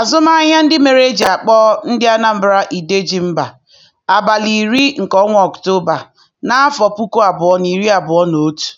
Azụmahịa ndị mere e ji akpọ ndị Anambra Idejimba abalị iri nke ọnwa Ọktoba, n'afọ puku abụọ na iri abụọ na otu.